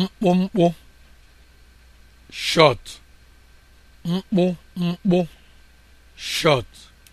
mkpụmkpụ short mkpụmkpụ shọt